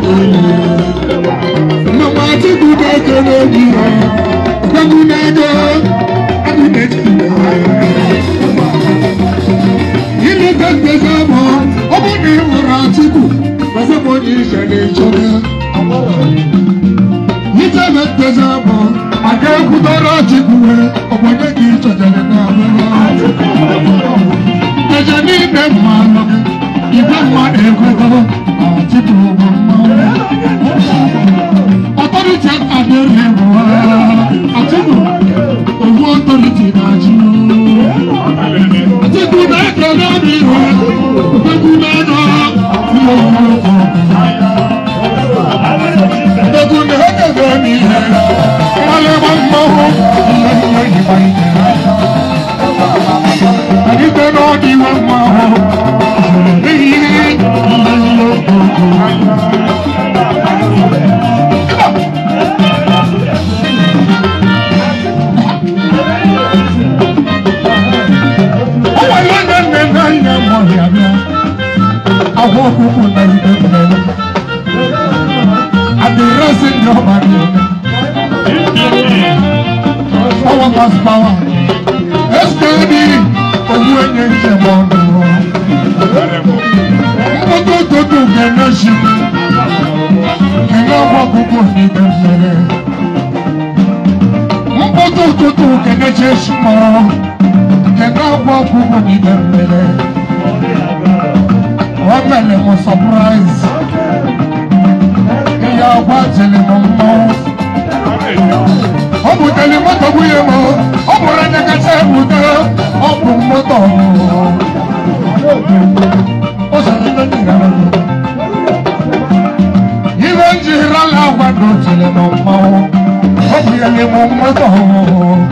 mama Chukwu na-ekele obi ha ọgbọgbụ na-edo ileta mgbego bụ ọbụ na ịhụrụ Atiku ọgbọgbọnye ife na-echọga itebe mgbego bụ aga ekwutara Atiku ọgbọnye gị chọjere na ọbụla eje n'ime mma anọ gị igwe mma na-ekwetara Atiku bụ mma Authority at the level. Atiku, ogun authority na ju. Atiku mẹ́kẹ̀ẹ́ lórí rẹ̀, òkú mẹ́nà, àti òun ọkọ̀. power people na you dey tell me and the rest in your body power pass power sd owó ẹyẹ ń jẹ mọ ọdún ọmọ tó tó tó gẹ̀ẹ́nà ṣe gẹ̀ẹ́nà wọ́n gbogbo ní bẹ̀rẹ̀ ọmọ tó tó tó gẹ̀ẹ́nà ṣe súnmọ́ gẹ̀ẹ́nà wọ́n gbogbo ní bẹ̀rẹ̀ ọmọ mo surprise ìyá ọgbà jìnnì mo mọ. ọ bụ tẹ̀lé mọ́tò wúyẹ mọ́ ọ bụ rẹ̀ nẹ́kẹ́sẹ́ ẹ̀bùdá ọ bụ mọ́tò mọ́. ó sọ ní lónìí ìrẹ̀lẹ̀ mi. ìwé ń jìnnì rálá wà lójìnnì mo mọ́ ọ bụ yẹn ni mo mọ́tò mọ́.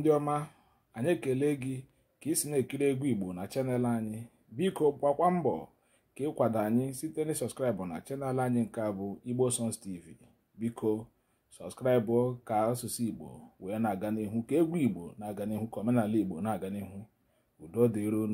ndị ọma anyị ekele gị ka ị si na-ekiri egwu igbo na chanel anyị biko gbakwa mbọ ka ịkwado anyị site na sọskraịbụ na chanel anyị nke abụ bụ igbo songs tv biko sọskraịbụ ka asụsụ igbo wee na-aga n'ihu ka egwu igbo na-aga n'ihu ka omenala igbo na-aga n'ihu udo dịron